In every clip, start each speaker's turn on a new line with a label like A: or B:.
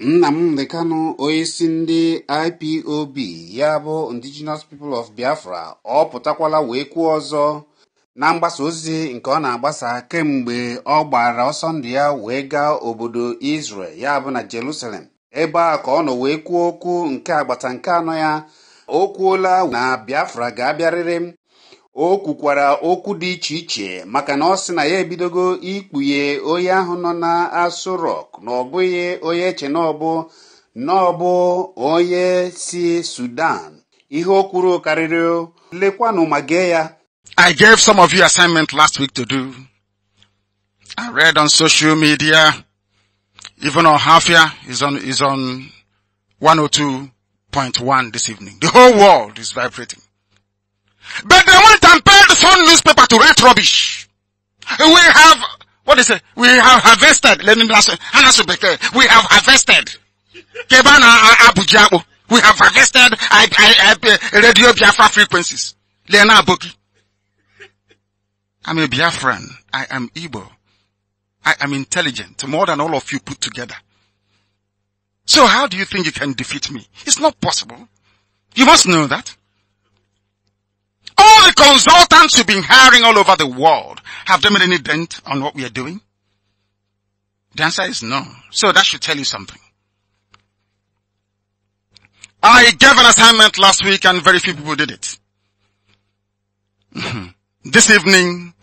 A: Nna m Nnamdi e onye onyeisi ndị IPOB ya bụ Indigenous People of Biafra ọ pụtakwala wee kwuo ọzọ na mgbasa ozi nke ọ na-agbasa kemgbe ọ gbara ọsọ ndụ ya wee gaa obodo Israel ya bụ na Jerusalem ebe a ka ọ nọ wee kwuo okwu nke agbata nke anọ ya o kwuola na Biafra ga-abịarịrị o kwukwara okwu dị iche iche maka na ọ sị na ya ebidogo ikpughe onye ahụ nọ na asụ rock na ọ bụghị onye eche na ọbụ na ọbụ onye si sudan ihe o kwuru karịrị lekwanụ ma gee ya I gave some of you assignment last week to do. I read on social media, even on Hafia is on, is on 102.1 this evening. The whole world is vibrating. But they went and paid some newspaper to write rubbish. We have, what is it? We have harvested. We have harvested. Uh, uh, oh, we have harvested I, I, I, uh, radio Biafra frequencies. I'm a Biafran. I am Igbo. I am intelligent, more than all of you put together. So how do you think you can defeat me? It's not possible. You must know that. All the consultants you've been hiring all over the world, have they made any dent on what we are doing? The answer is no. So that should tell you something. I gave an assignment last week and very few people did it. this evening,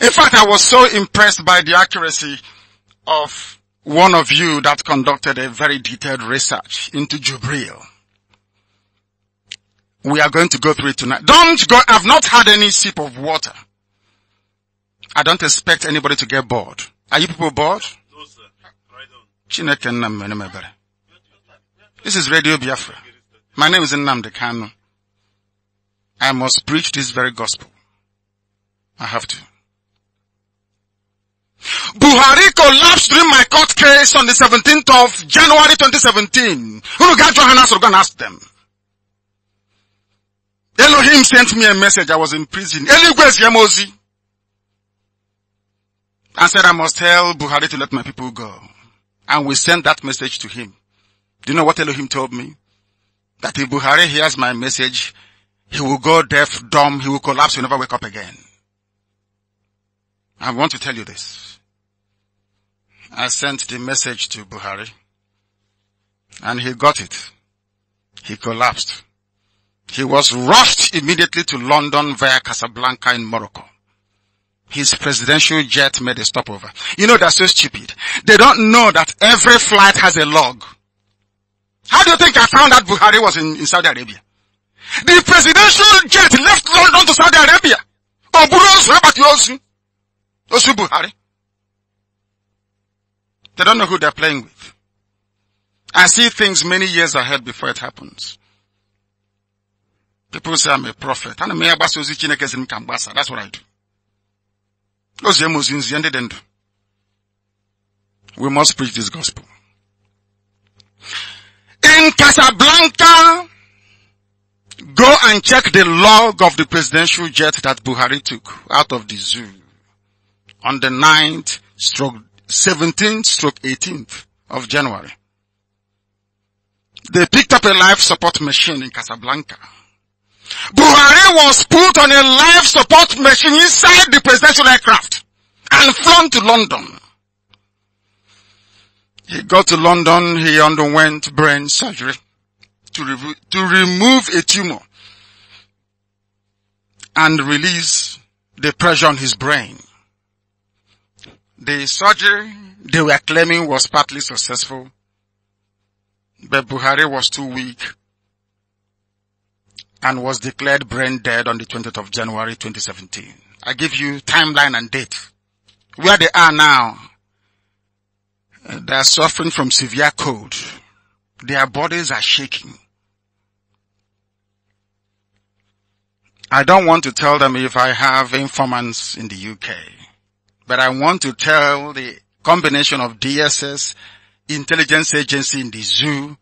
A: in fact, I was so impressed by the accuracy of one of you that conducted a very detailed research into Jubril. We are going to go through it tonight. Don't go, I've not had any sip of water. I don't expect anybody to get bored. Are you people bored? No, sir. Right on. This is Radio Biafra. My name is Nnamdi Kanu. I must preach this very gospel. I have to. Buhari collapsed during my court case on the 17th of January 2017. Who got your hands? We're going to ask them. Elohim sent me a message. I was in prison. Eligwes Yemozi. And said, I must tell Buhari to let my people go. And we sent that message to him. Do you know what Elohim told me? That if Buhari hears my message, he will go deaf, dumb, he will collapse, he will never wake up again. I want to tell you this. I sent the message to Buhari and he got it. He collapsed. He was rushed immediately to London via Casablanca in Morocco. His presidential jet made a stopover. You know, that's so stupid. They don't know that every flight has a log. How do you think I found out Buhari was in, in Saudi Arabia? The presidential jet left London to Saudi Arabia. Buhari. They don't know who they're playing with. I see things many years ahead before it happens. People say I'm a prophet. And m i gbasa ozi Chineke sị kambasa. That's what I do. ozi nzi ndị dị ndụ. We must preach this gospel. In Casablanca, go and check the log of the presidential jet that Buhari took out of the zoo on the 9th stroke 17th stroke 18th of January. They picked up a life support machine in Casablanca. Buhari was put on a life support machine inside the presidential aircraft and flown to London. He got to London, he underwent brain surgery to, re- to remove a tumor and release the pressure on his brain. The surgery they were claiming was partly successful, but Buhari was too weak and was declared brain dead on the 20th of January 2017. I give you timeline and date. Where they are now, they are suffering from severe cold. Their bodies are shaking. I don't want to tell them if I have informants in the UK, but I want to tell the combination of DSS, intelligence agency in the zoo,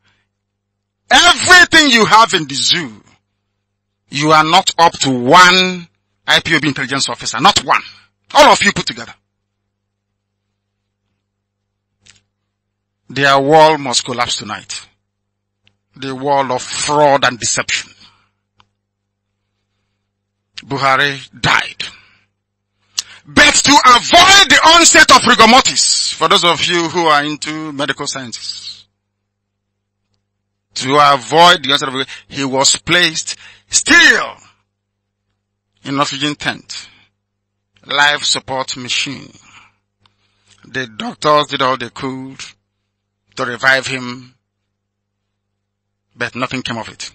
A: everything you have in the zoo you are not up to one IPOB intelligence officer. Not one. All of you put together. Their wall must collapse tonight. The wall of fraud and deception. Buhari died. But to avoid the onset of rigor mortis, for those of you who are into medical sciences, to avoid the onset of rigor, he was placed Still in oxygen tent, life support machine. The doctors did all they could to revive him, but nothing came of it.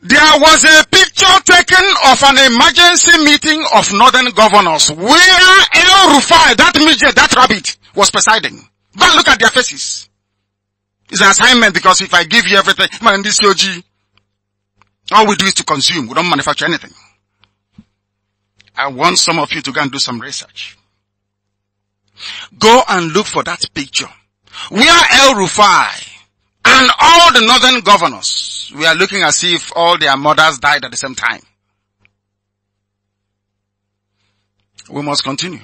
A: There was a picture taken of an emergency meeting of northern governors where El Rufai, that midget, that rabbit, was presiding. But look at their faces. It's an assignment because if I give you everything, man, this OG, all we do is to consume. We don't manufacture anything. I want some of you to go and do some research. Go and look for that picture. We are El Rufai and all the northern governors We are looking as if all their mothers died at the same time. We must continue.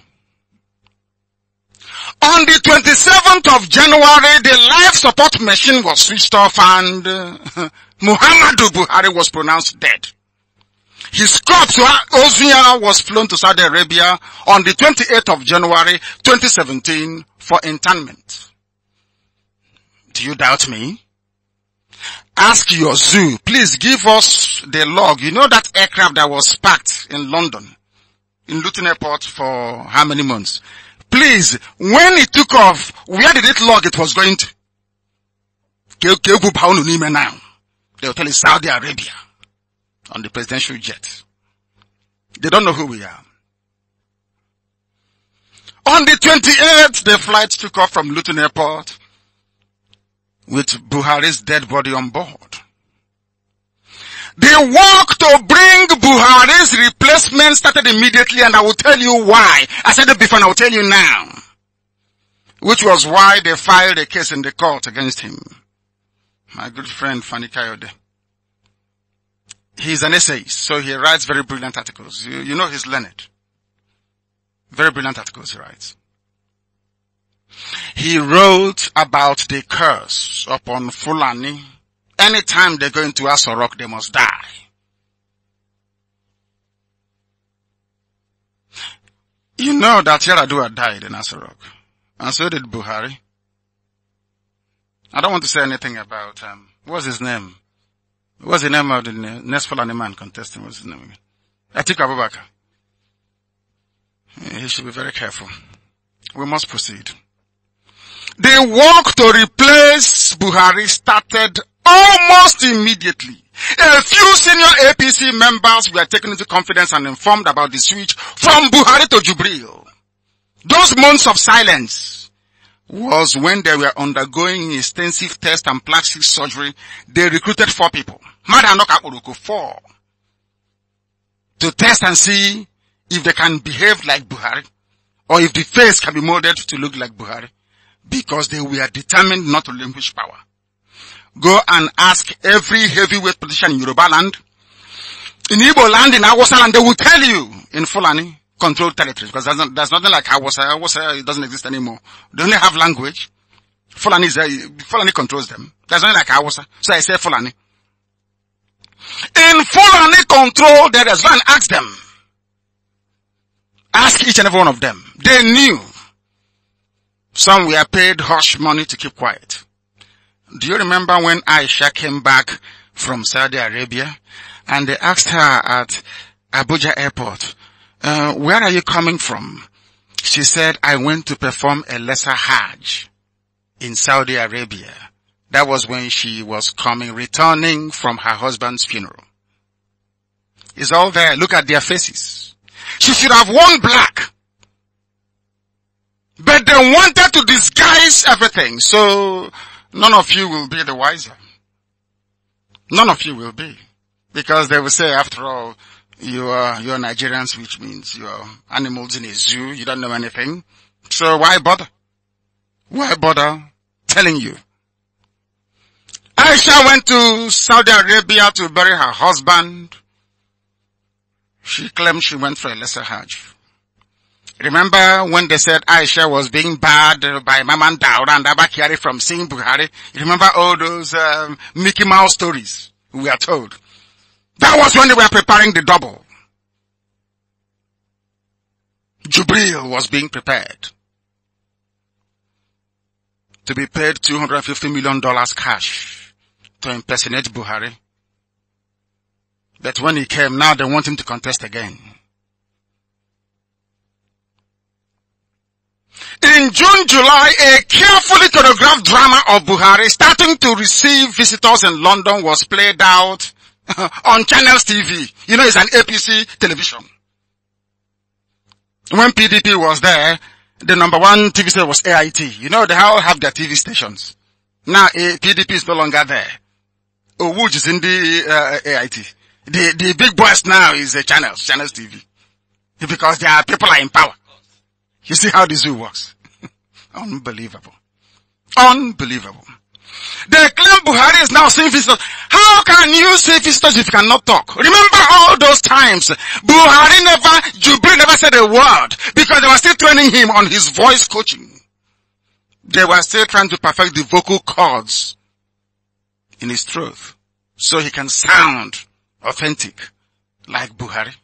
A: On the 27th of January, the life support machine was switched off and Muhammadu Buhari was pronounced dead. His corpse, was flown to Saudi Arabia on the 28th of January 2017 for internment. Do you doubt me? Ask your zoo. Please give us the log. You know that aircraft that was parked in London, in Luton Airport for how many months? Please, when it took off, where did it log it was going to? Now They'll tell you Saudi Arabia on the presidential jet. They don't know who we are. On the 28th, the flight took off from Luton Airport with Buhari's dead body on board. The work to bring Buhari's replacement started immediately and I will tell you why. I said it before and I will tell you now. Which was why they filed a case in the court against him my good friend Fanny Kayode. He's an essayist, so he writes very brilliant articles. You, you know he's learned. Very brilliant articles he writes. He wrote about the curse upon Fulani. Anytime they go into Asorok, they must die. You know that Yaradua died in Asorok, and so did Buhari. I don't want to say anything about, um, what's his name? What's the name of the next Fulani man contesting? What's his name again? Atiku Abubakar. He should be very careful. We must proceed. The work to replace Buhari started almost immediately. A few senior APC members were taken into confidence and informed about the switch from Buhari to Jubril. Those months of silence was when they were undergoing extensive tests and plastic surgery, they recruited four people. Four. To test and see if they can behave like Buhari or if the face can be molded to look like Buhari because they were determined not to relinquish power. Go and ask every heavyweight politician in Yoruba land, in Igbo land, in Awasa land, they will tell you in Fulani controlled territories because there's not, that's nothing like Hausa. Hausa doesn't exist anymore. They only have language. Fulani is there. Fulani controls them. There's nothing like Hausa. So I say Fulani. In Fulani control, there is one. Ask them. Ask each and every one of them. They knew. Some were paid hush money to keep quiet. Do you remember when Aisha came back from Saudi Arabia and they asked her at Abuja airport, uh, where are you coming from? She said, I went to perform a lesser Hajj in Saudi Arabia. That was when she was coming, returning from her husband's funeral. It's all there. Look at their faces. She should have worn black. But they wanted to disguise everything. So none of you will be the wiser. None of you will be. Because they will say, after all, you are, you are Nigerians, which means you are animals in a zoo. You don't know anything. So why bother? Why bother telling you? Aisha went to Saudi Arabia to bury her husband. She claimed she went for a lesser Hajj. Remember when they said Aisha was being barred by Maman Daura and Abakari from seeing Buhari? Remember all those um, Mickey Mouse stories we are told? That was when they were preparing the double. Jubril was being prepared to be paid $250 million cash to impersonate Buhari. But when he came, now they want him to contest again. In June, July, a carefully choreographed drama of Buhari starting to receive visitors in London was played out on Channels TV. You know, it's an APC television. When PDP was there, the number one TV station was AIT. You know, they all have their TV stations. Now, PDP is no longer there. Owuj is in the uh, AIT. The, the big boss now is uh, Channels, Channels TV. Because their people are in power. You see how this zoo works. Unbelievable. Unbelievable. They claim Buhari is now seeing visitors can you say visitors if you cannot talk? Remember all those times Buhari never, Jubilee never said a word because they were still training him on his voice coaching. They were still trying to perfect the vocal cords in his throat so he can sound authentic like Buhari.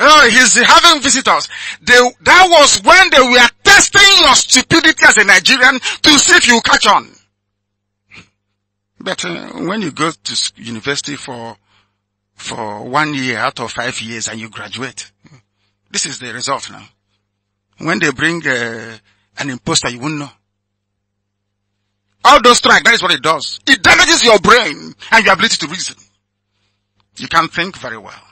A: Oh, he's having visitors. They, that was when they were testing your stupidity as a Nigerian to see if you catch on. But uh, when you go to university for, for one year out of five years and you graduate, this is the result now. When they bring uh, an imposter, you won't know. All those strike, that is what it does. It damages your brain and your ability to reason. You can't think very well.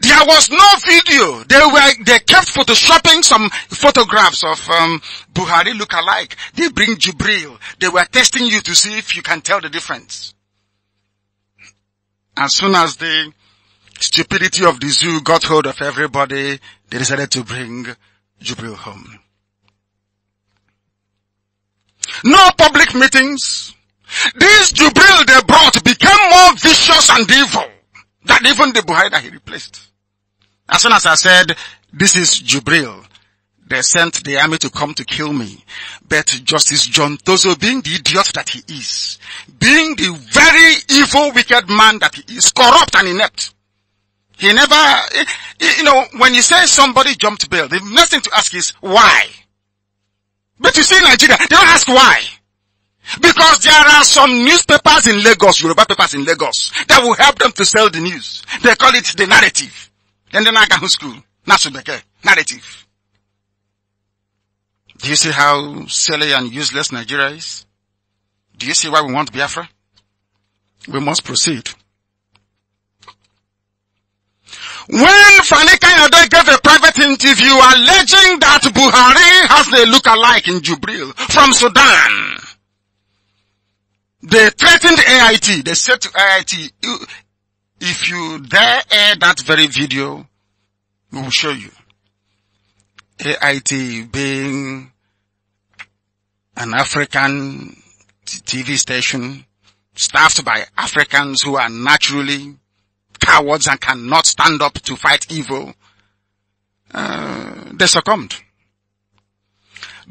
A: There was no video. They were, they kept photoshopping some photographs of, um, Buhari look-alike. They bring Jibril. They were testing you to see if you can tell the difference. As soon as the stupidity of the zoo got hold of everybody, they decided to bring Jibril home. No public meetings. This Jibril they brought became more vicious and evil. That even the Buhari that he replaced. As soon as I said, this is Jubril, they sent the army to come to kill me. But Justice John Tozo, being the idiot that he is, being the very evil, wicked man that he is, corrupt and inept, he never, eh, eh, you know, when you say somebody jumped bail, the next thing to ask is why. But you see Nigeria, they don't ask why. Because there are some newspapers in Lagos, Yoruba papers in Lagos, that will help them to sell the news. They call it the narrative. Then the Nagahu school, Nasubeke, narrative. Do you see how silly and useless Nigeria is? Do you see why we want Biafra? We must proceed. When Fanika Yade gave a private interview alleging that Buhari has a look-alike in Jubril from Sudan, they threatened AIT. They said to AIT, if you dare air that very video, we will show you. AIT being an African TV station staffed by Africans who are naturally cowards and cannot stand up to fight evil, uh, they succumbed.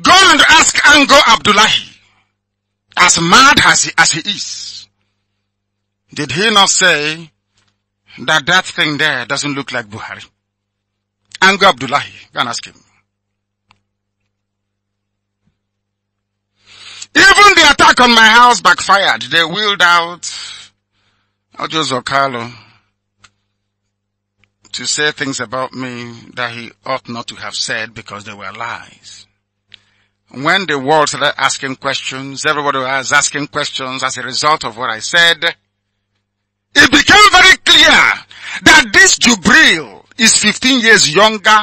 A: Go and ask Ango Abdullahi as mad as he, as he is, did he not say that that thing there doesn't look like Buhari? And Abdullahi, go and ask him. Even the attack on my house backfired. They wheeled out Ojo Zokalo to say things about me that he ought not to have said because they were lies. When the world started asking questions, everybody was asking questions as a result of what I said, it became very clear that this Jubril is 15 years younger.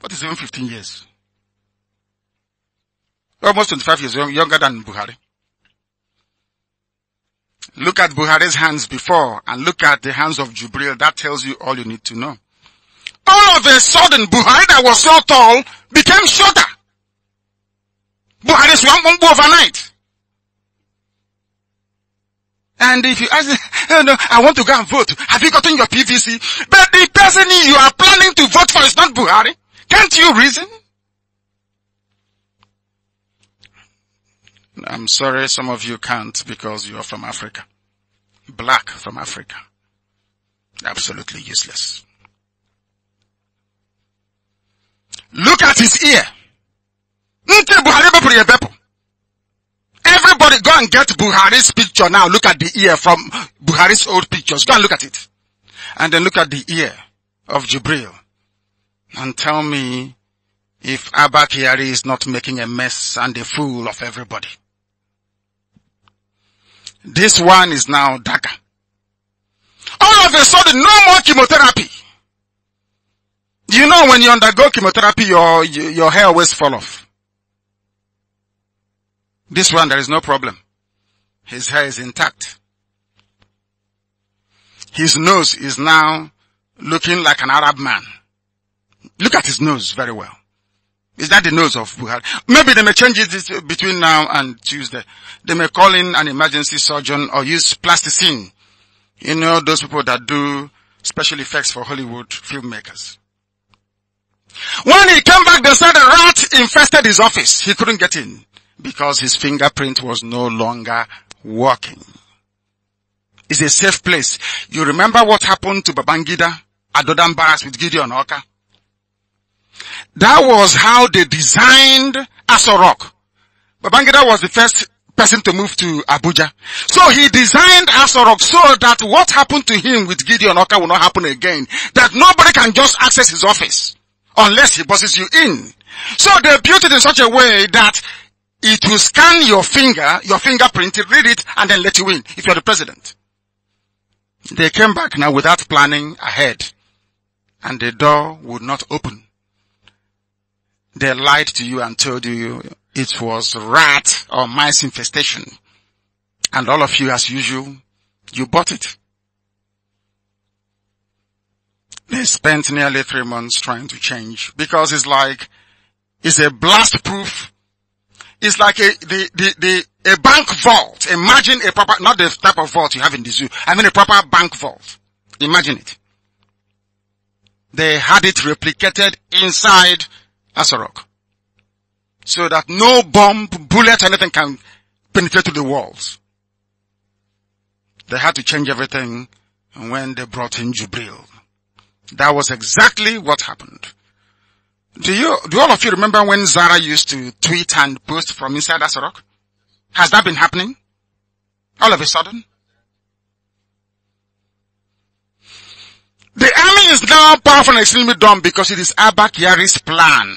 A: What is even 15 years? Almost 25 years younger than Buhari. Look at Buhari's hands before and look at the hands of Jubril. That tells you all you need to know. All of a sudden, Buhari that was so tall became shorter. But at overnight. And if you ask, oh no, I want to go and vote. Have you gotten your PVC? But the person you are planning to vote for is not Buhari. Can't you reason? I'm sorry some of you can't because you are from Africa. Black from Africa. Absolutely useless. Look at his ear. Everybody go and get Buhari's picture now. Look at the ear from Buhari's old pictures. Go and look at it. And then look at the ear of Jibril. And tell me if Abba Kiari is not making a mess and a fool of everybody. This one is now dagger. All of a sudden, no more chemotherapy. You know, when you undergo chemotherapy, your, your hair always fall off. This one, there is no problem. His hair is intact. His nose is now looking like an Arab man. Look at his nose very well. Is that the nose of Buhari? Maybe they may change it between now and Tuesday. They may call in an emergency surgeon or use plasticine. You know, those people that do special effects for Hollywood filmmakers. When he came back, they said a rat infested his office. He couldn't get in because his fingerprint was no longer working. It's a safe place. You remember what happened to Babangida at Dodan Barracks with Gideon Oka? That was how they designed Asorok. Babangida was the first person to move to Abuja. So he designed Asorok so that what happened to him with Gideon Oka will not happen again. That nobody can just access his office unless he bosses you in. So they built it in such a way that it will scan your finger, your fingerprint, read it, and then let you in if you're the president. They came back now without planning ahead and the door would not open. They lied to you and told you it was rat or mice infestation. And all of you as usual, you bought it. They spent nearly three months trying to change because it's like, it's a blast proof it's like a, the, the, the, a bank vault. Imagine a proper, not the type of vault you have in the zoo. I mean a proper bank vault. Imagine it. They had it replicated inside Asarok. So that no bomb, bullet, anything can penetrate to the walls. They had to change everything when they brought in Jubril. That was exactly what happened. Do you, do all of you remember when Zara used to tweet and post from inside rock? Has that been happening? All of a sudden? The army is now powerful and extremely dumb because it is Abba Kiari's plan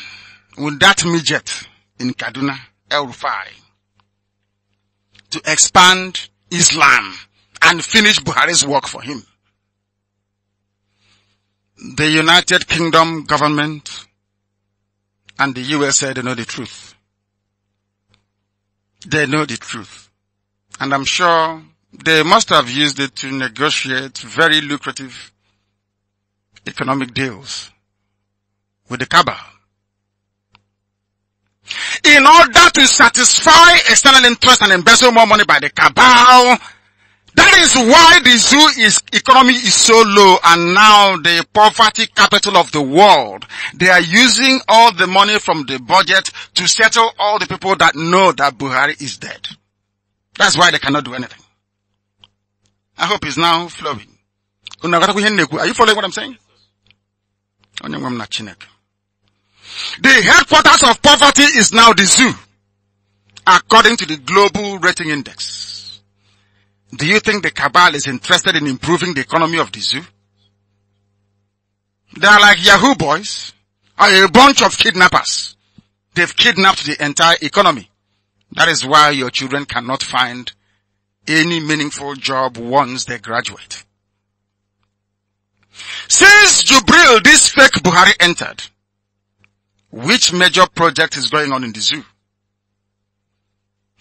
A: with that midget in Kaduna, El Rufai, to expand Islam and finish Buhari's work for him. The United Kingdom government and the US said they know the truth. They know the truth. And I'm sure they must have used it to negotiate very lucrative economic deals with the cabal. In order to satisfy external interest and embezzle more money by the cabal, that is why the zoo is economy is so low and now the poverty capital of the world, they are using all the money from the budget to settle all the people that know that Buhari is dead. That's why they cannot do anything. I hope it's now flowing. Are you following what I'm saying? The headquarters of poverty is now the zoo, according to the Global Rating Index. Do you think the cabal is interested in improving the economy of the zoo? They are like Yahoo boys, are a bunch of kidnappers. They've kidnapped the entire economy. That is why your children cannot find any meaningful job once they graduate. Since Jubril, this fake Buhari entered, which major project is going on in the zoo?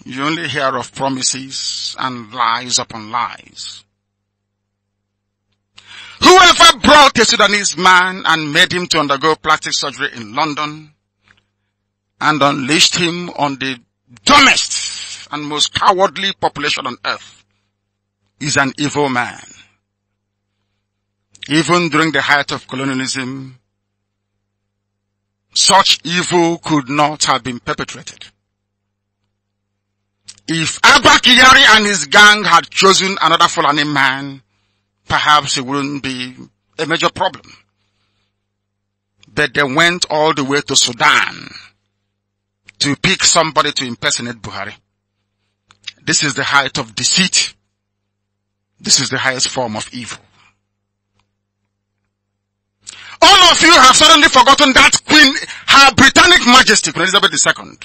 A: You only hear of promises and lies upon lies. Whoever brought a Sudanese man and made him to undergo plastic surgery in London and unleashed him on the dumbest and most cowardly population on earth is an evil man. Even during the height of colonialism, such evil could not have been perpetrated. If Abba Kiyari and his gang had chosen another Fulani man, perhaps it wouldn't be a major problem. But they went all the way to Sudan to pick somebody to impersonate Buhari. This is the height of deceit. This is the highest form of evil. All of you have suddenly forgotten that Queen, her Britannic Majesty, Queen Elizabeth II,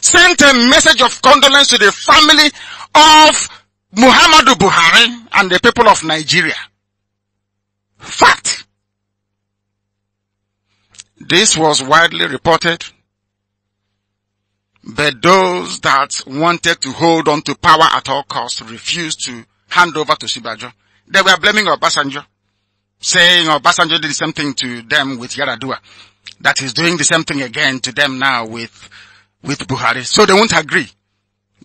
A: sent a message of condolence to the family of Muhammadu Buhari and the people of Nigeria. Fact. This was widely reported, but those that wanted to hold on to power at all costs refused to hand over to Sibajo. They were blaming Obasanjo, saying Obasanjo did the same thing to them with Yaradua, that he's doing the same thing again to them now with with Buhari. So they won't agree.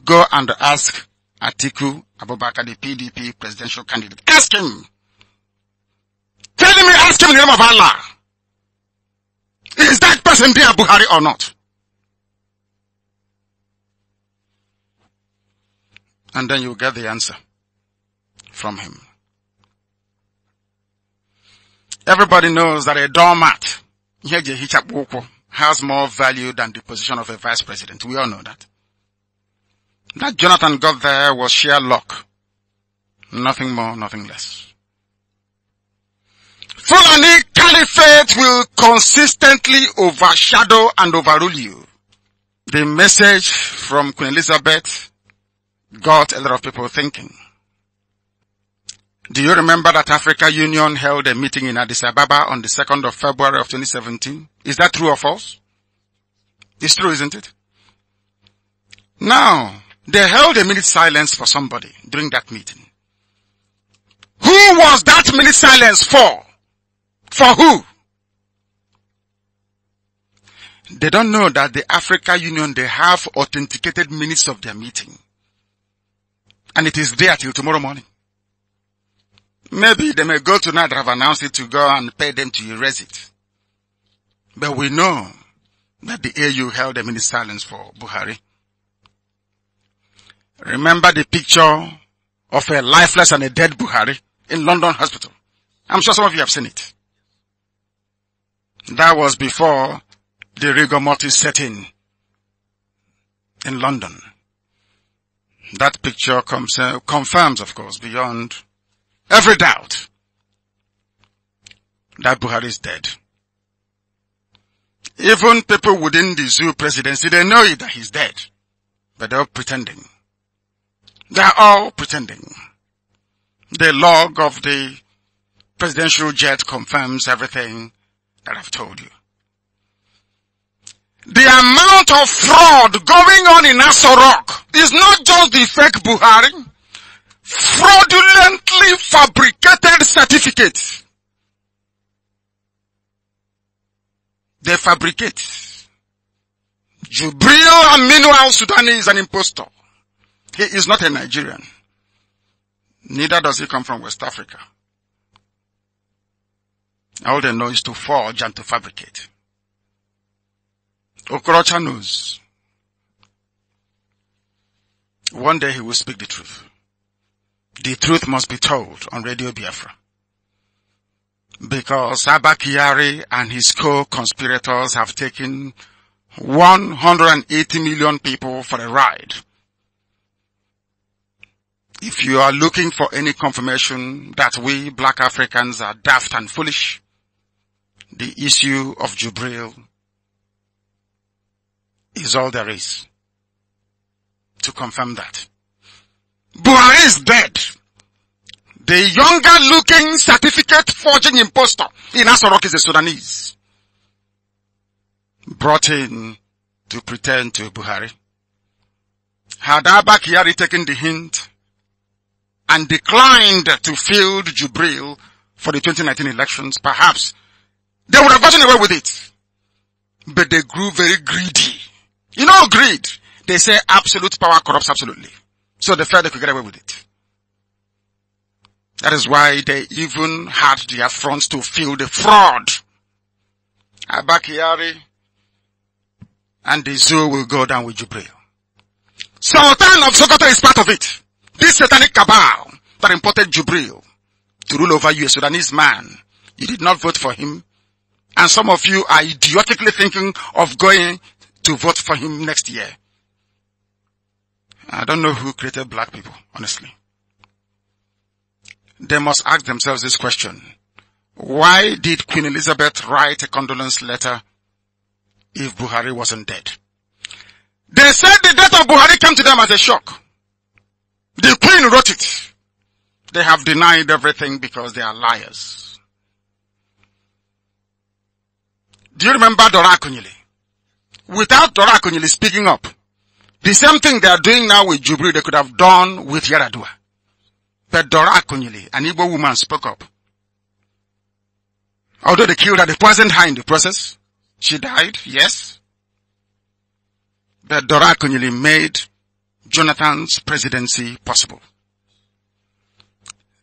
A: Go and ask Atiku Abubakar, the PDP presidential candidate. Ask him. Tell him, ask him in the name of Allah. Is that person there Buhari or not? And then you get the answer from him. Everybody knows that a doormat, ihe ji ehichapụ has more value than the position of a vice president. We all know that. That Jonathan got there was sheer luck. Nothing more, nothing less. Fulani caliphate will consistently overshadow and overrule you. The message from Queen Elizabeth got a lot of people thinking. Do you remember that Africa Union held a meeting in Addis Ababa on the 2nd of February of 2017? Is that true or false? It's true, isn't it? Now, they held a minute silence for somebody during that meeting. Who was that minute silence for? For who? They don't know that the Africa Union, they have authenticated minutes of their meeting. And it is there till tomorrow morning. Maybe they may go tonight have announced it to go and pay them to erase it. But we know that the AU held them in silence for Buhari. Remember the picture of a lifeless and a dead Buhari in London hospital. I'm sure some of you have seen it. That was before the rigor mortis set in in London. That picture comes, uh, confirms, of course, beyond Every doubt that Buhari is dead. Even people within the zoo presidency, they know that he's dead. But they're all pretending. They're all pretending. The log of the presidential jet confirms everything that I've told you. The amount of fraud going on in Asorok is not just the fake Buhari fraudulently fabricated certificates. They fabricate. Jubril Aminu al-Sudani is an impostor. He is not a Nigerian. Neither does he come from West Africa. All they know is to forge and to fabricate. Okorocha knows. One day he will speak the truth. The truth must be told on Radio Biafra. Because Abakari and his co-conspirators have taken 180 million people for a ride. If you are looking for any confirmation that we black Africans are daft and foolish, the issue of Jubril is all there is to confirm that. Buhari is dead. The younger looking certificate forging impostor in Asorok is a Sudanese. Brought in to pretend to Buhari. Had Abakari taken the hint and declined to field Jubril for the 2019 elections, perhaps they would have gotten away with it. But they grew very greedy. You know greed. They say absolute power corrupts absolutely. So they felt they could get away with it. That is why they even had the affront to feel the fraud. Abakiari and the zoo will go down with Jubril. Sultan of Sokoto is part of it. This satanic cabal that imported Jubril to rule over you, a Sudanese man. You did not vote for him. And some of you are idiotically thinking of going to vote for him next year. I don't know who created black people, honestly. They must ask themselves this question. Why did Queen Elizabeth write a condolence letter if Buhari wasn't dead? They said the death of Buhari came to them as a shock. The Queen wrote it. They have denied everything because they are liars. Do you remember Dora Akunyili? Without Dora Akunyili speaking up, the same thing they are doing now with Jubilee, they could have done with Yaradua. But Dora Akunyili, an Igbo woman, spoke up. Although they killed her, they poisoned her in the process. She died, yes. But Dora Akunyili made Jonathan's presidency possible.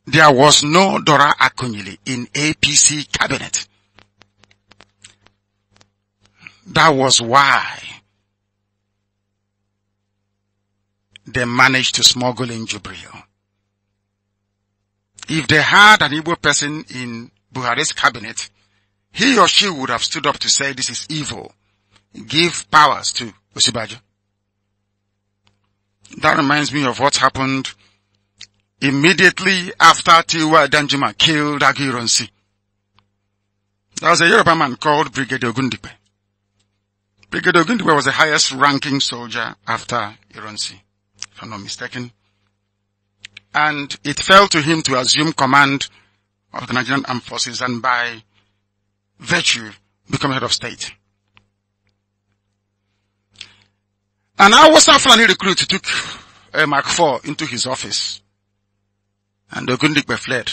A: There was no Dora Akunyili in APC cabinet. That was why they managed to smuggle in Jubril. If they had an evil person in Buhari's cabinet, he or she would have stood up to say this is evil. Give powers to Osibajo. That reminds me of what happened immediately after Tiwa Danjuma killed Agironsi. There was a Yoruba man called Brigadier Ogundipe. Brigadier Ogundipe was the highest ranking soldier after Ironsi if I'm not mistaken. And it fell to him to assume command of the Nigerian Armed Forces and by virtue become head of state. And our Western Fulani recruit took uh, Mark IV into his office and Ogundikbe fled.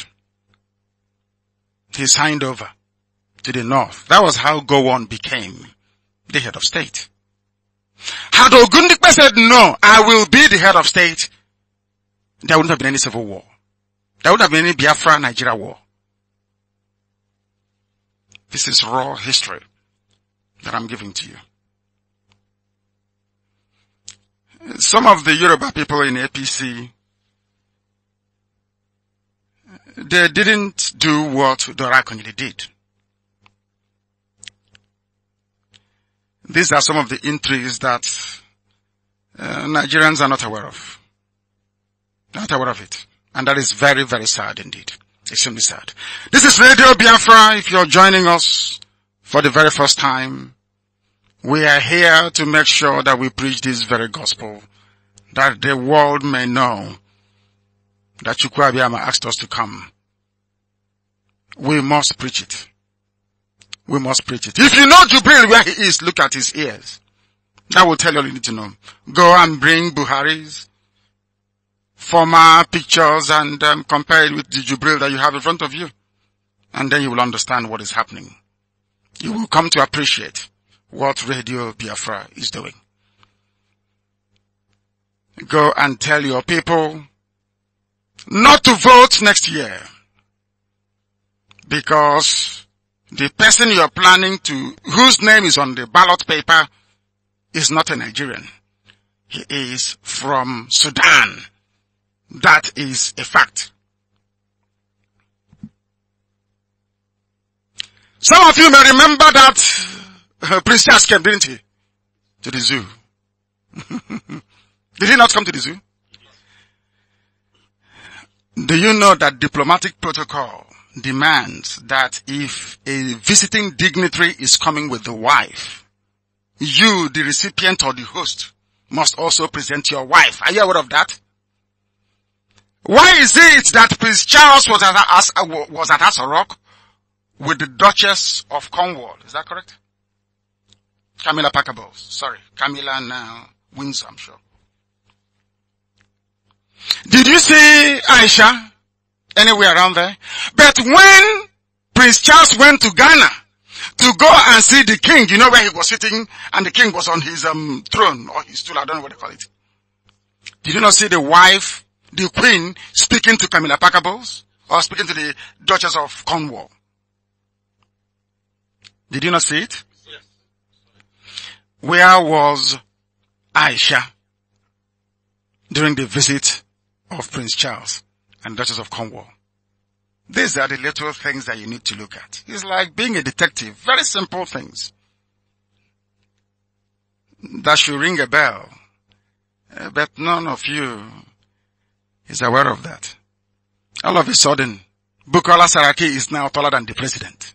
A: He signed over to the north. That was how Gowon became the head of state. Had Ogundipe said, no, I will be the head of state, there wouldn't have been any civil war. There wouldn't have been any Biafra-Nigeria war. This is raw history that I'm giving to you. Some of the Yoruba people in APC, they didn't do what Dorakonili did. These are some of the intrigues that uh, Nigerians are not aware of. Not aware of it. And that is very, very sad indeed. Extremely sad. This is Radio Biafra. If you're joining us for the very first time, we are here to make sure that we preach this very gospel, that the world may know that Chukwabiyama asked us to come. We must preach it we must preach it. If you know Jubril where he is, look at his ears. That will tell you all you need to know. Go and bring Buhari's former pictures and um, compare it with the Jubril that you have in front of you. And then you will understand what is happening. You will come to appreciate what Radio Biafra is doing. Go and tell your people not to vote next year because the person you are planning to, whose name is on the ballot paper, is not a Nigerian. He is from Sudan. That is a fact. Some of you may remember that uh, Prince Charles came, didn't he? To the zoo. Did he not come to the zoo? Do you know that diplomatic protocol demands that if a visiting dignitary is coming with the wife, you, the recipient or the host, must also present your wife. Are you aware of that? Why is it that Prince Charles was at, As- was at Rock with the Duchess of Cornwall? Is that correct? Camilla Parker Bowles. Sorry. Camilla now Windsor, I'm sure. Did you see Aisha? anywhere around there. But when Prince Charles went to Ghana to go and see the king, you know where he was sitting and the king was on his um, throne or his stool, I don't know what they call it. Did you not see the wife, the queen, speaking to Camilla Parker Bowles or speaking to the Duchess of Cornwall? Did you not see it? Where was Aisha during the visit of Prince Charles? and Duchess of Cornwall. These are the little things that you need to look at. It's like being a detective. Very simple things. That should ring a bell. Eh, but none of you is aware of that. All of a sudden, Bukola Saraki is now taller than the president.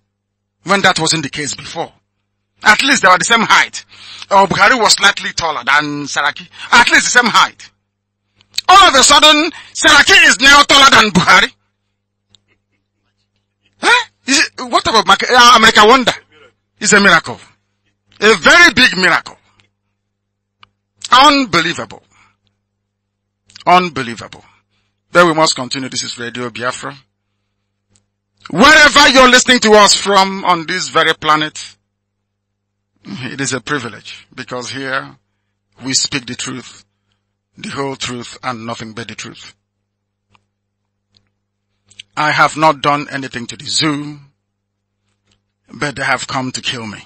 A: When that wasn't the case before. At least they were the same height. Or Buhari was slightly taller than Saraki. At least the same height all of a sudden, Seraki is now taller than Buhari? Huh? It, what about uh, America Wonder? It's a miracle. A very big miracle. Unbelievable. Unbelievable. Then we must continue. This is Radio Biafra. Wherever you're listening to us from on this very planet, it is a privilege because here we speak the truth the whole truth and nothing but the truth. I have not done anything to the zoo, but they have come to kill me.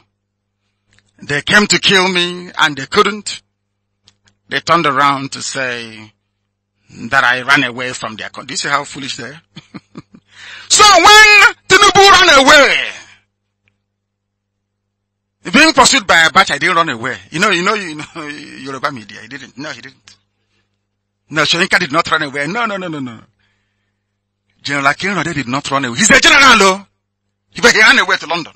A: They came to kill me and they couldn't. They turned around to say that I ran away from their country. Do you see how foolish they are? so when Tinubu ran away, being pursued by a batch, I didn't run away. You know, you know, you know, Yoruba media, he didn't. No, he didn't. No, Shoyinka did not run away. No, no, no, no, no. General Akinrode did not run away. He's a general, though. He ran away to London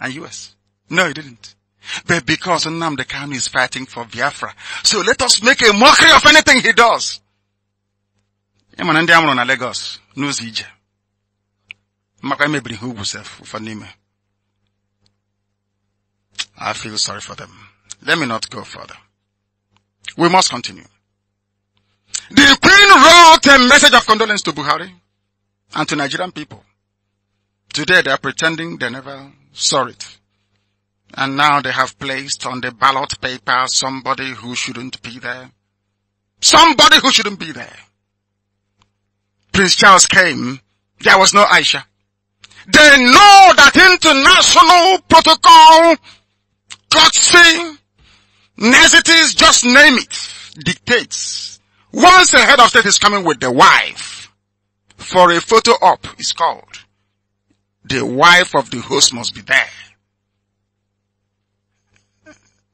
A: and US. No, he didn't. But because Nnamdi Kanu is fighting for Biafra, so let us make a mockery of anything he does. na Lagos maka emebiri sef I feel sorry for them. Let me not go further. We must continue. The Queen wrote a message of condolence to Buhari and to Nigerian people. Today they are pretending they never saw it. And now they have placed on the ballot paper somebody who shouldn't be there. Somebody who shouldn't be there. Prince Charles came, there was no Aisha. They know that international protocol, courtesy, niceties, just name it, dictates once the head of state is coming with the wife for a photo op, it's called. The wife of the host must be there.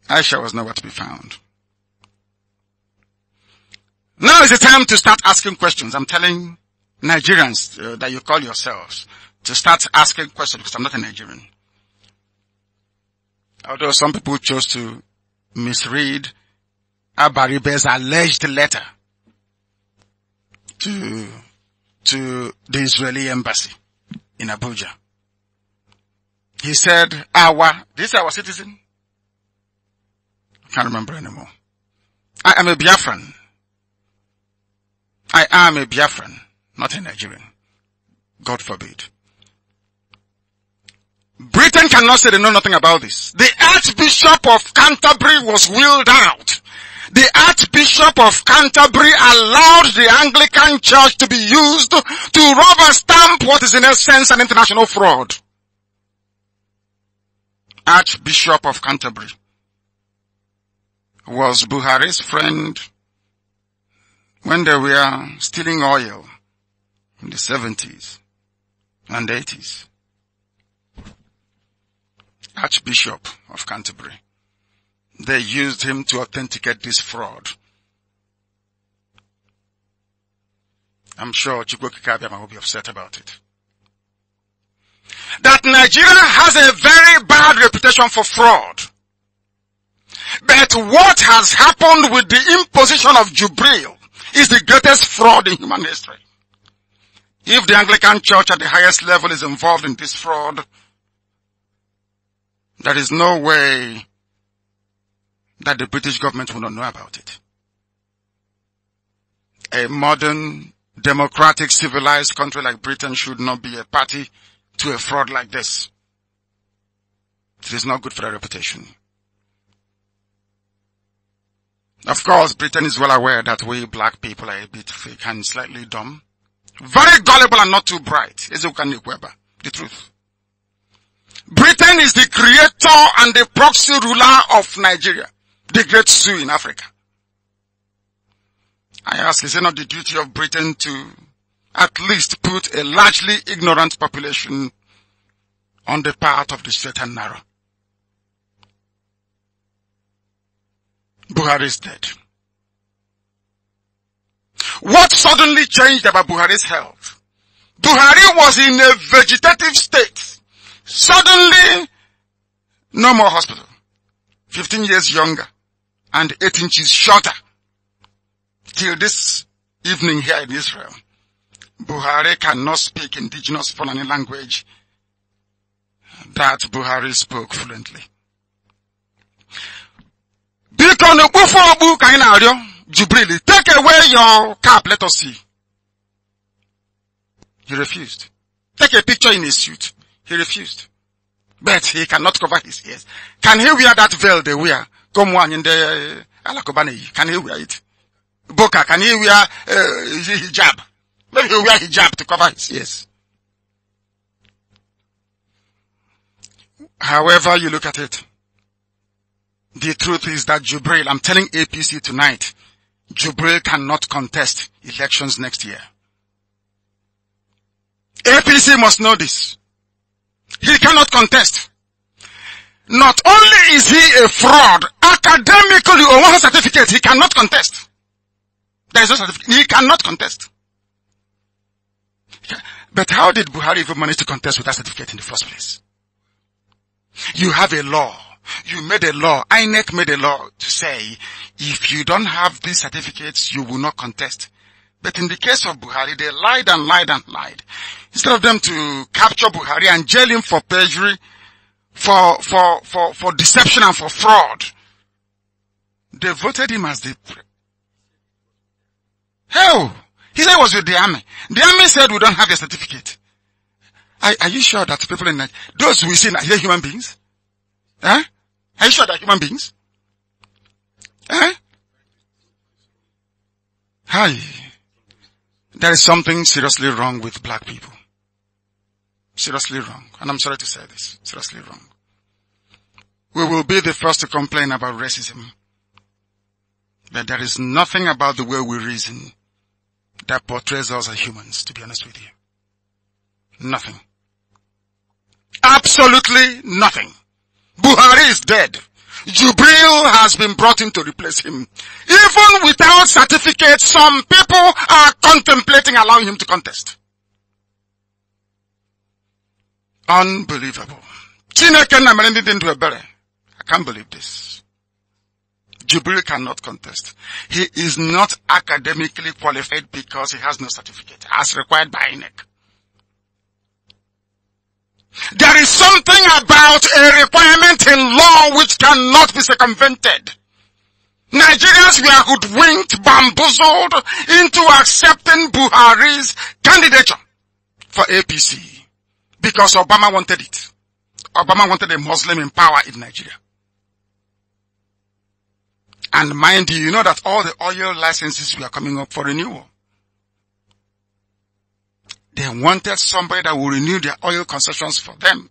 A: Aisha was nowhere to be found. Now is the time to start asking questions. I'm telling Nigerians uh, that you call yourselves to start asking questions because I'm not a Nigerian. Although some people chose to misread Abaribe's alleged letter to, to the Israeli embassy in Abuja. He said, our, this our citizen? I can't remember anymore. I am a Biafran. I am a Biafran, not a Nigerian. God forbid. Britain cannot say they know nothing about this. The Archbishop of Canterbury was wheeled out the Archbishop of Canterbury allowed the Anglican Church to be used to rubber stamp what is in essence an international fraud. Archbishop of Canterbury was Buhari's friend when they were stealing oil in the 70s and 80s. Archbishop of Canterbury. They used him to authenticate this fraud. I'm sure Chukwoki Kabiama will be upset about it. That Nigeria has a very bad reputation for fraud. But what has happened with the imposition of Jubril is the greatest fraud in human history. If the Anglican Church at the highest level is involved in this fraud, there is no way that the British government will not know about it. A modern, democratic, civilized country like Britain should not be a party to a fraud like this. It is not good for their reputation. Of course, Britain is well aware that we black people are a bit fake and slightly dumb. Very gullible and not too bright. Is Weber. The truth. Britain is the creator and the proxy ruler of Nigeria the great zoo in Africa. I ask, is it not the duty of Britain to at least put a largely ignorant population on the path of the straight and narrow? Buhari is dead. What suddenly changed about Buhari's health? Buhari was in a vegetative state. Suddenly, no more hospital. 15 years younger and 8 inches shorter till this evening here in Israel. Buhari cannot speak indigenous Fulani language that Buhari spoke fluently. Jubril, take away your cap, let us see. He refused. Take a picture in his suit. He refused. But he cannot cover his ears. Can he wear that veil they wear? Come one, in the eh, alakụba Can ka na-ewia it boka ka na-ewia eh, hijab maybe he wear hijab to cover his ears however you look at it the truth is that Jubril, I'm telling APC tonight, Jubril cannot contest elections next year. APC must know this. He cannot contest. Not only is he a fraud, academically on one certificate, he cannot contest. There is no certificate. He cannot contest. But how did Buhari even manage to contest with that certificate in the first place? You have a law. You made a law. INEC made a law to say, if you don't have these certificates, you will not contest. But in the case of Buhari, they lied and lied and lied. Instead of them to capture Buhari and jail him for perjury, for, for, for, for deception and for fraud. They voted him as the... Hell! He said he was with the army. The army said we don't have a certificate. Are, are you sure that people in those we see, are they human beings? Huh? Are you sure they're human beings? Huh? Hi. There is something seriously wrong with black people. Seriously wrong. And I'm sorry to say this. Seriously wrong. We will be the first to complain about racism. But there is nothing about the way we reason that portrays us as humans, to be honest with you. Nothing. Absolutely nothing. Buhari is dead. Jubril has been brought in to replace him. Even without certificates, some people are contemplating allowing him to contest. Unbelievable. Chineke na-emere ndị dị ndụ ebere. I can't believe this. Jibril cannot contest. He is not academically qualified because he has no certificate as required by INEC. There is something about a requirement in law which cannot be circumvented. Nigerians were hoodwinked, bamboozled into accepting Buhari's candidature for APC. Because Obama wanted it. Obama wanted a Muslim in power in Nigeria. And mind you, you know that all the oil licenses were coming up for renewal. They wanted somebody that will renew their oil concessions for them.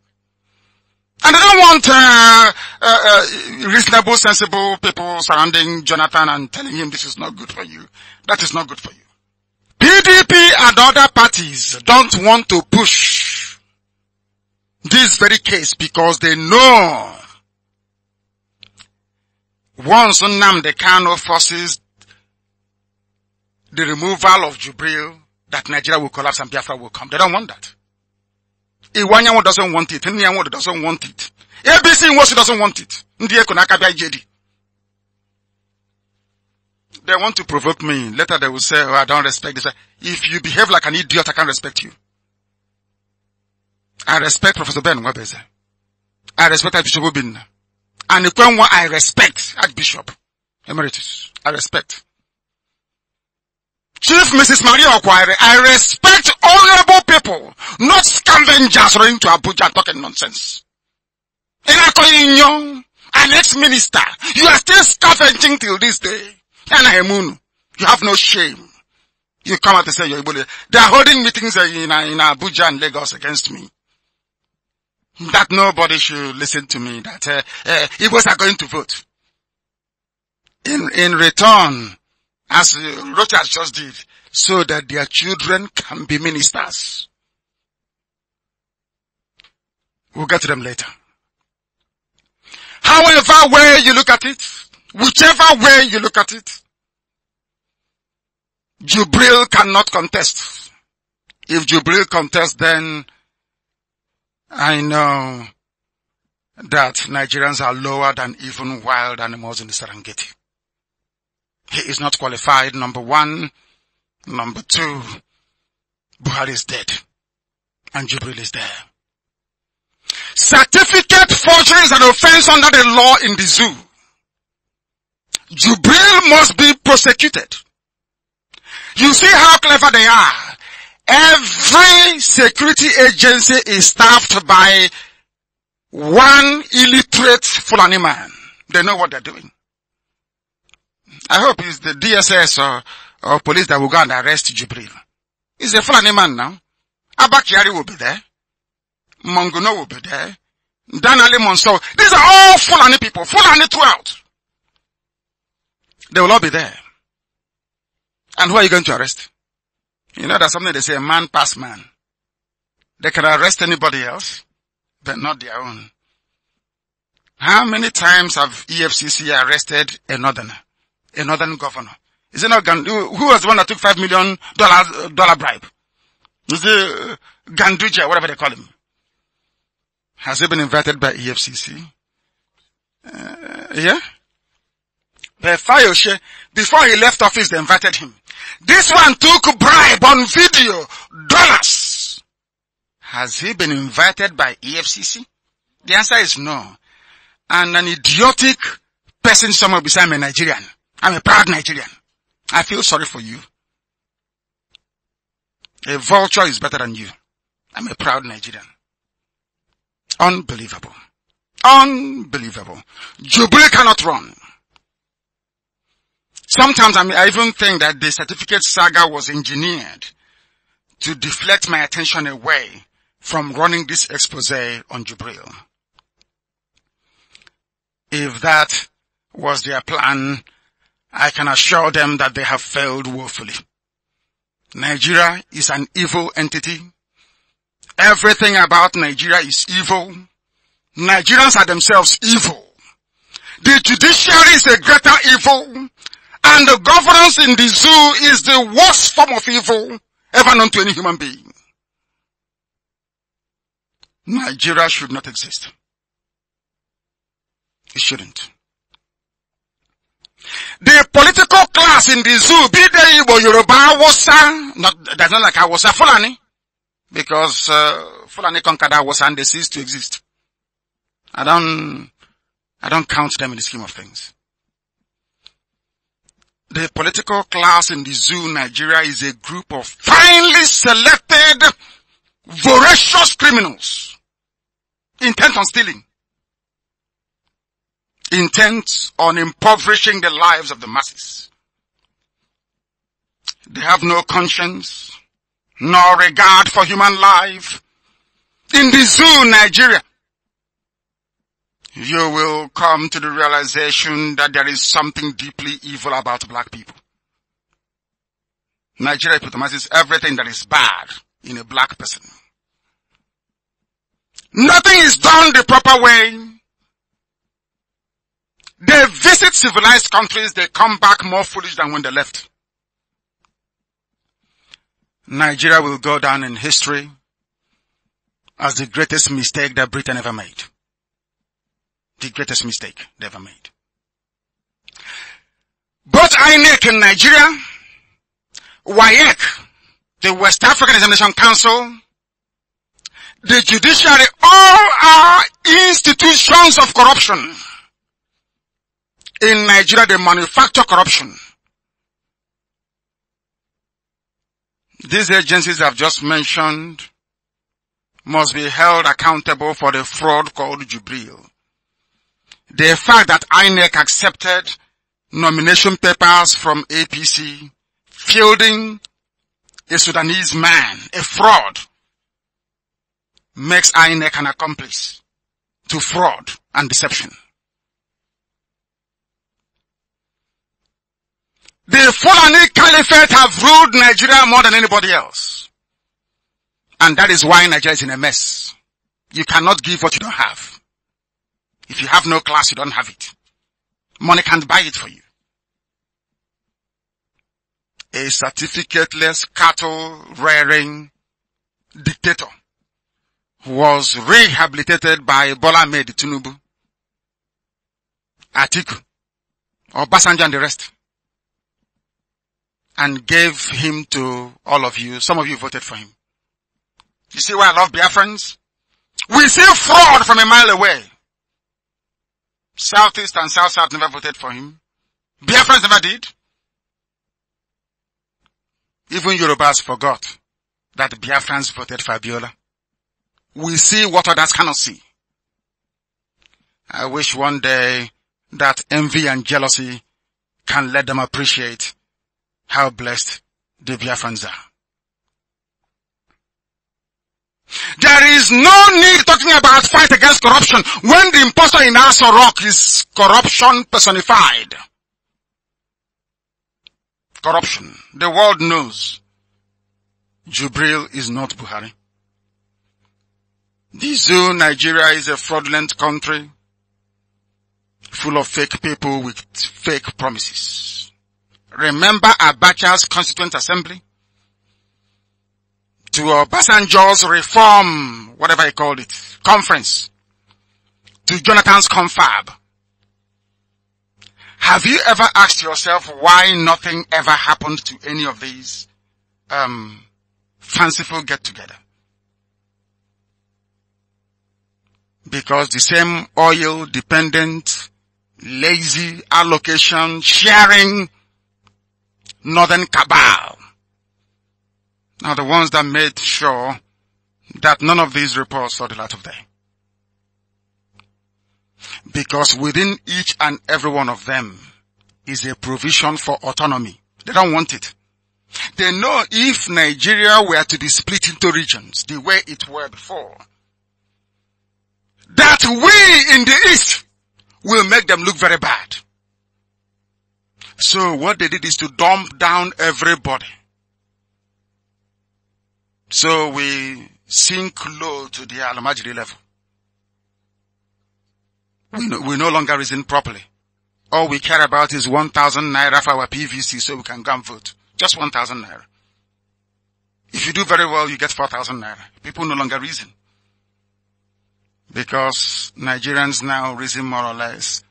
A: And they don't want uh, uh, uh, reasonable, sensible people surrounding Jonathan and telling him this is not good for you. That is not good for you. PDP and other parties don't want to push this very case because they know once the Kano forces the removal of Jubril that Nigeria will collapse and Biafra will come. They don't want that. Iwanyanwo doesn't want it. Nyanwo doesn't want it. ABC Nwosu doesn't want it. They want to provoke me. Later they will say, oh, I don't respect this. If you behave like an idiot, I can't respect you. I respect Professor Ben Webeze. I respect Archbishop Obinna. And the one I respect Archbishop Emeritus. I respect. Chief Mrs. Maria Okwari, I respect honorable people, not scavengers running to Abuja and talking nonsense. Inakoyinyo, an ex-minister, you are still scavenging till this day. Anahemunu, you have no shame. You come out and say you're They are holding meetings in, in Abuja and Lagos against me that nobody should listen to me, that uh, uh, Igbos are going to vote. In, in return, as uh, Rochas just did, so that their children can be ministers. We'll get to them later. However way you look at it, whichever way you look at it, Jubril cannot contest. If Jubril contests, then I know that Nigerians are lower than even wild animals in the Serengeti. He is not qualified, number one. Number two, Buhari is dead. And Jubril is there. Certificate forgery is an offense under the law in the zoo. Jubril must be prosecuted. You see how clever they are. Every security agency is staffed by one illiterate Fulani man. They know what they're doing. I hope it's the DSS or, or police that will go and arrest Jibril. He's a Fulani man now. Abakiari will be there. Manguno will be there. Danali Monso. These are all Fulani people. Fulani throughout. They will all be there. And who are you going to arrest? You know, that's something they say, a man pass man. They can arrest anybody else, but not their own. How many times have EFCC arrested a northerner, a northern governor? Is it not Gandu? Who was the one that took five million dollars uh, dollar bribe? Is it uh, Ganduja, whatever they call him? Has he been invited by EFCC? Uh, yeah. But Fayoshe, before he left office, they invited him. This one took bribe on video, dollars. Has he been invited by EFCC? The answer is no. And an idiotic person somewhere beside me, Nigerian. I'm a proud Nigerian. I feel sorry for you. A vulture is better than you. I'm a proud Nigerian. Unbelievable. Unbelievable. Jubilee cannot run. Sometimes I, mean, I even think that the certificate saga was engineered to deflect my attention away from running this expose on Jubril. If that was their plan, I can assure them that they have failed woefully. Nigeria is an evil entity. Everything about Nigeria is evil. Nigerians are themselves evil. The judiciary is a greater evil and the governance in the zoo is the worst form of evil ever known to any human being. Nigeria should not exist. It shouldn't. The political class in the zoo, be they Igbo, Yoruba, Awusa, not, that's not like Awusa, Fulani, because uh, Fulani conquered Awusa and they ceased to exist. I don't, I don't count them in the scheme of things the political class in the zoo Nigeria is a group of finely selected voracious criminals intent on stealing, intent on impoverishing the lives of the masses. They have no conscience, nor regard for human life. In the zoo Nigeria, you will come to the realization that there is something deeply evil about black people. Nigeria epitomizes everything that is bad in a black person. Nothing is done the proper way. They visit civilized countries, they come back more foolish than when they left. Nigeria will go down in history as the greatest mistake that Britain ever made the greatest mistake they ever made. Both INEC in Nigeria, WAEC, the West African Examination Council, the judiciary, all are institutions of corruption. In Nigeria, they manufacture corruption. These agencies I've just mentioned must be held accountable for the fraud called Jubril. The fact that INEC accepted nomination papers from APC fielding a Sudanese man, a fraud, makes INEC an accomplice to fraud and deception. The Fulani Caliphate have ruled Nigeria more than anybody else. And that is why Nigeria is in a mess. You cannot give what you don't have. If you have no class, you don't have it. Money can't buy it for you. A certificateless cattle rearing dictator was rehabilitated by Bola Ahmed Tinubu, Atiku, Obasanjo and the rest. And gave him to all of you. Some of you voted for him. You see why I love Biafrans? We see fraud from a mile away. Southeast and South South never voted for him. Biafrans never did. Even Yorubas forgot that Biafrans voted Fabiola. We see what others cannot see. I wish one day that envy and jealousy can let them appreciate how blessed the Biafrans are. There is no need talking about fight against corruption when the impostor in Aso Rock is corruption personified. Corruption. The world knows Jubril is not Buhari. The zoo Nigeria is a fraudulent country full of fake people with fake promises. Remember Abacha's constituent assembly? to Obasanjo's uh, reform, whatever he called it, conference, to Jonathan's confab. Have you ever asked yourself why nothing ever happened to any of these um, fanciful get-together? Because the same oil-dependent, lazy allocation, sharing northern cabal are the ones that made sure that none of these reports saw the light of day. Because within each and every one of them is a provision for autonomy. They don't want it. They know if Nigeria were to be split into regions the way it were before, that we in the East will make them look very bad. So what they did is to dump down everybody so we sink low to the al level. We no, we no longer reason properly. All we care about is 1,000 naira for our PVC so we can go and vote. Just 1,000 naira. If you do very well, you get 4,000 naira. People no longer reason. Because Nigerians now reason more or less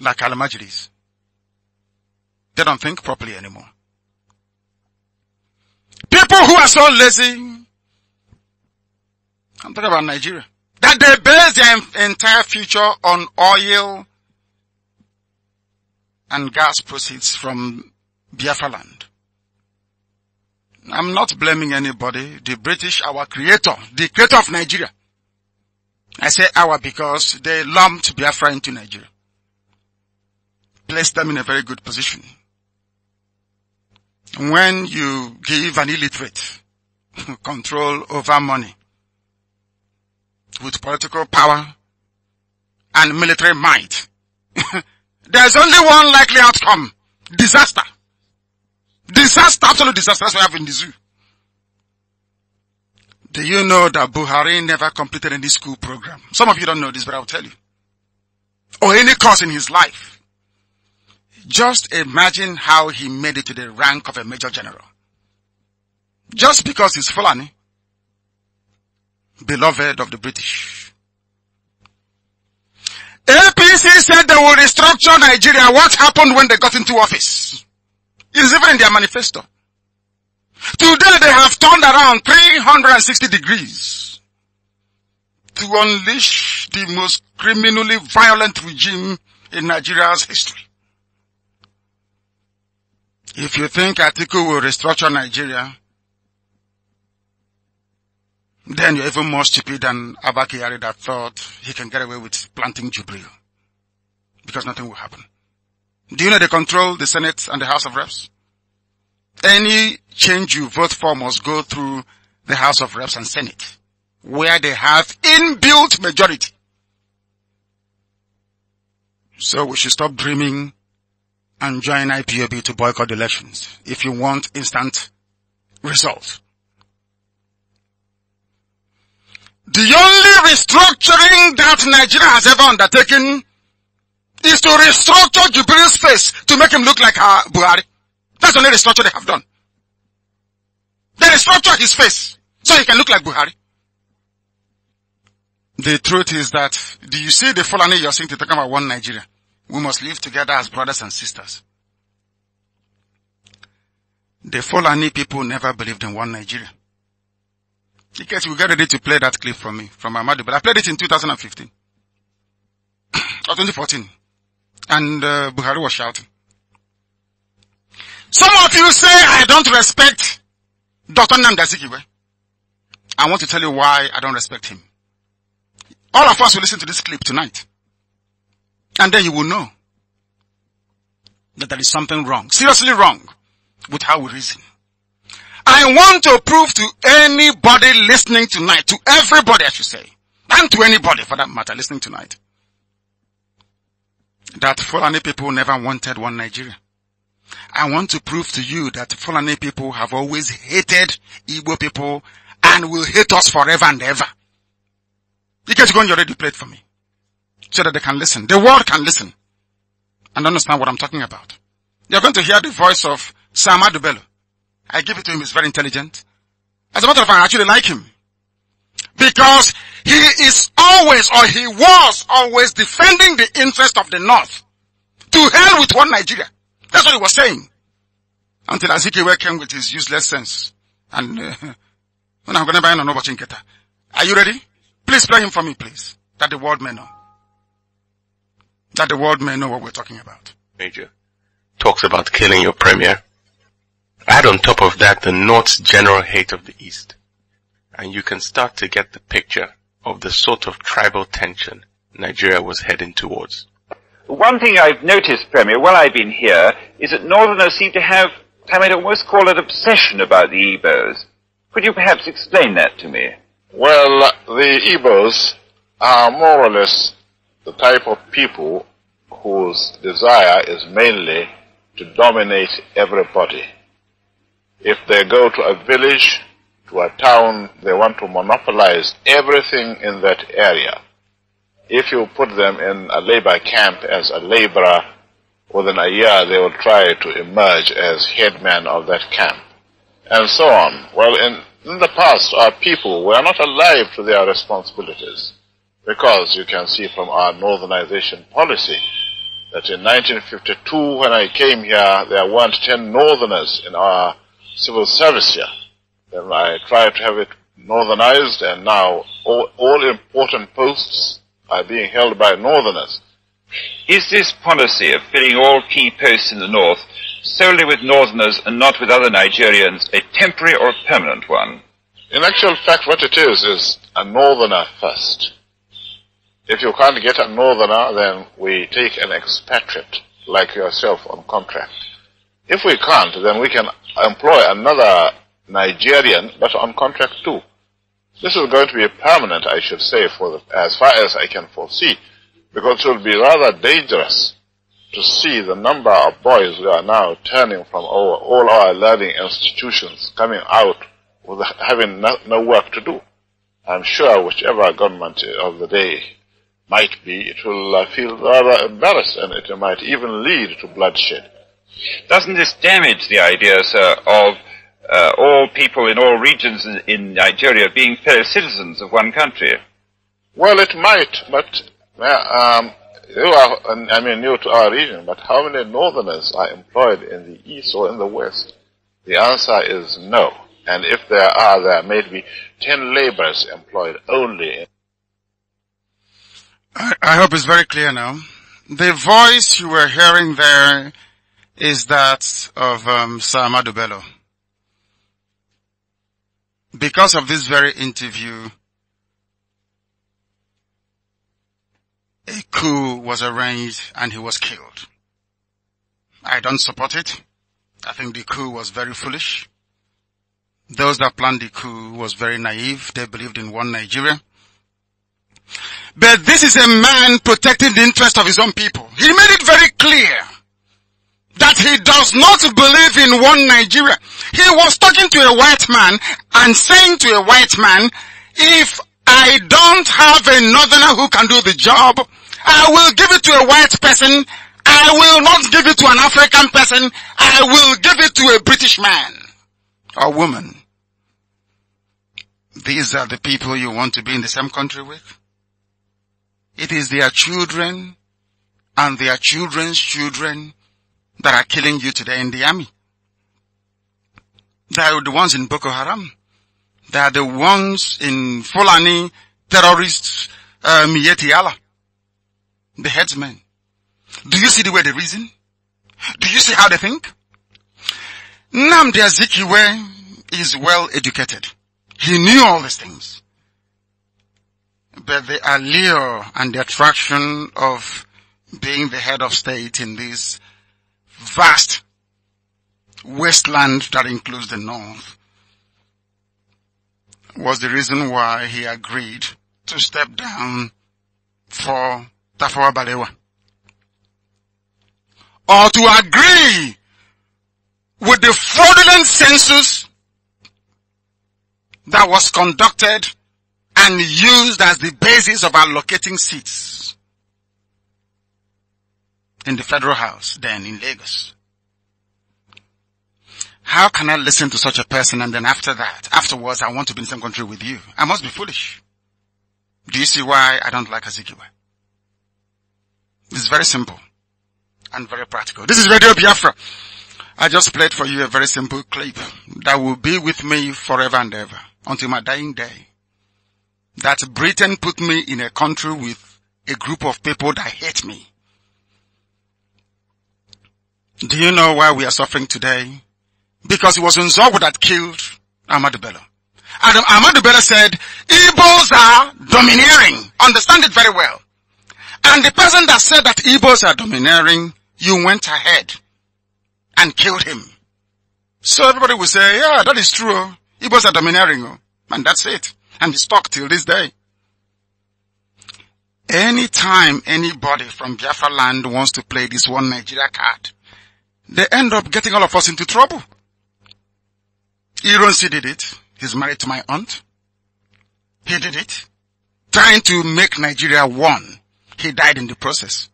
A: like al They don't think properly anymore. People who are so lazy, I'm talking about Nigeria, that they base their entire future on oil and gas proceeds from Biafra land. I'm not blaming anybody. The British, our creator, the creator of Nigeria. I say our because they lumped Biafra into Nigeria. Placed them in a very good position when you give an illiterate control over money with political power and military might, there's only one likely outcome. Disaster. Disaster, absolute disaster. That's what we have in the zoo. Do you know that Buhari never completed any school program? Some of you don't know this, but I'll tell you. Or any course in his life. Just imagine how he made it to the rank of a major general. Just because he's Fulani, beloved of the British. APC said they will restructure Nigeria. What happened when they got into office? It's even in their manifesto. Today they have turned around 360 degrees to unleash the most criminally violent regime in Nigeria's history. If you think Atiku will restructure Nigeria, then you're even more stupid than Abakari that thought he can get away with planting Jubril. Because nothing will happen. Do you know they control the Senate and the House of Reps? Any change you vote for must go through the House of Reps and Senate, where they have inbuilt majority. So we should stop dreaming and join IPOB to boycott elections if you want instant results. The only restructuring that Nigeria has ever undertaken is to restructure Jubilee's face to make him look like uh, Buhari. That's the only restructure they have done. They restructure his face so he can look like Buhari. The truth is that, do you see the Fulani you're seeing to talk about one Nigeria? We must live together as brothers and sisters. The Fulani people never believed in one Nigeria. In case you get ready to play that clip from me, from Amadu, but I played it in 2015 or 2014, and uh, Buhari was shouting. Some of you say I don't respect Dr. Namdazikiwe. I want to tell you why I don't respect him. All of us will listen to this clip tonight. And then you will know that there is something wrong, seriously wrong with how we reason. I want to prove to anybody listening tonight, to everybody I should say, and to anybody for that matter listening tonight, that Fulani people never wanted one Nigeria. I want to prove to you that Fulani people have always hated Igbo people and will hate us forever and ever. You guys go you already prayed for me so that they can listen. The world can listen and understand what I'm talking about. You're going to hear the voice of Sam Adubelo. I give it to him. He's very intelligent. As a matter of fact, I actually like him because he is always or he was always defending the interest of the North to hell with one Nigeria. That's what he was saying. Until Azikiwe came with his useless sense. And, uh, I'm gonna buy an Are you ready? Please play him for me, please. That the world may know that the world may know what we're talking about. Major talks about killing your premier. Add on top of that the North's general hate of the East. And you can start to get the picture of the sort of tribal tension Nigeria was heading towards.
B: One thing I've noticed, Premier, while I've been here, is that Northerners seem to have, I might almost call it obsession about the Igbos. Could you perhaps explain that to me? Well, the Igbos are more or less the type of people whose desire is mainly to dominate everybody. If they go to a village, to a town, they want to monopolize everything in that area. If you put them in a labor camp as a laborer, within a year they will try to emerge as headman of that camp, and so on. Well, in, in the past, our people were not alive to their responsibilities. Because you can see from our northernization policy that in 1952, when I came here, there weren't 10 northerners in our civil service here. Then I tried to have it northernized, and now all, all important posts are being held by northerners. Is this policy of filling all key posts in the north solely with northerners and not with other Nigerians a temporary or a permanent one? In actual fact, what it is is a northerner first. If you can't get a northerner, then we take an expatriate like yourself on contract. If we can't, then we can employ another Nigerian, but on contract too. This is going to be permanent, I should say, for the, as far as I can foresee, because it will be rather dangerous to see the number of boys who are now turning from our, all our learning institutions coming out with having no, no work to do. I'm sure whichever government of the day might be, it will uh, feel rather embarrassed and it might even lead to bloodshed. Doesn't this damage the idea, sir, of uh, all people in all regions in, Nigeria being fellow citizens of one country? Well, it might, but um, you are, I mean, new to our region, but how many northerners are employed in the east or in the west? The answer is no. And if there are, there may be 10 laborers employed only in
A: I, I hope it's very clear now. The voice you were hearing there is that of um, Sir Bello. Because of this very interview, a coup was arranged and he was killed. I don't support it. I think the coup was very foolish. Those that planned the coup was very naive. They believed in one Nigeria. But this is a man protecting the interest of his own people. He made it very clear that he does not believe in one Nigeria. He was talking to a white man and saying to a white man, if I don't have a northerner who can do the job, I will give it to a white person. I will not give it to an African person. I will give it to a British man or woman. These are the people you want to be in the same country with. It is their children and their children's children that are killing you today in the army. They are the ones in Boko Haram. They are the ones in Fulani terrorists, um, Yetiala. The headsmen. Do you see the way they reason? Do you see how they think? Namdi Azikiwe is well educated. He knew all these things but the allure and the attraction of being the head of state in this vast wasteland that includes the north was the reason why he agreed to step down for Tafawa Balewa. Or to agree with the fraudulent census that was conducted and used as the basis of allocating seats in the federal house then in Lagos. How can I listen to such a person and then after that, afterwards I want to be in the same country with you? I must be foolish. Do you see why I don't like Azikiwe? It's very simple and very practical. This is Radio Biafra. I just played for you a very simple clip that will be with me forever and ever until my dying day that Britain put me in a country with a group of people that hate me. Do you know why we are suffering today? Because it was Nzogu that killed Ahmadu Bello. And Ahmadu Bello said, Igbos are domineering. Understand it very well. And the person that said that Igbos are domineering, you went ahead and killed him. So everybody will say, yeah, that is true. Igbos are domineering. And that's it and is stuck till this day. Anytime anybody from Biafra land wants to play this one Nigeria card, they end up getting all of us into trouble. Ironsi did it. He's married to my aunt. He did it. Trying to make Nigeria one. He died in the process.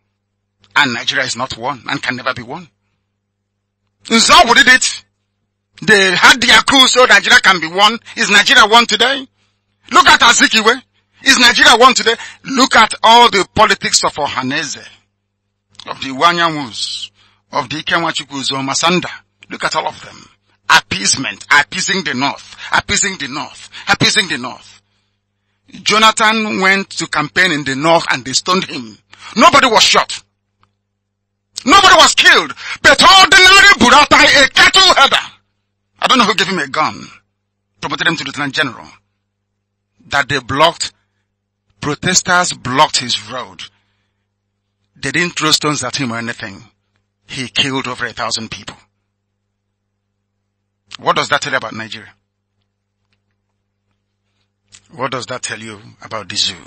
A: And Nigeria is not one and can never be one. Nzawu did it. They had their coup so Nigeria can be one. Is Nigeria one today? Look at Azikiwe. Is Nigeria one today? Look at all the politics of Ohaneze, of the Wanyamus, of the Ikemwachukwus or Masanda. Look at all of them. Appeasement, appeasing the North, appeasing the North, appeasing the North. Jonathan went to campaign in the North and they stoned him. Nobody was shot. Nobody was killed. But ordinary Buratai, a cattle herder. I don't know who gave him a gun. Promoted him to Lieutenant General that they blocked, protesters blocked his road. They didn't throw stones at him or anything. He killed over a thousand people. What does that tell you about Nigeria? What does that tell you about the zoo?